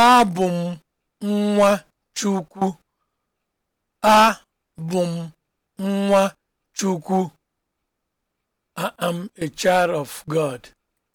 Abụ m nwa Chukwu. Abụ m nwa Chukwu. I am a child of God.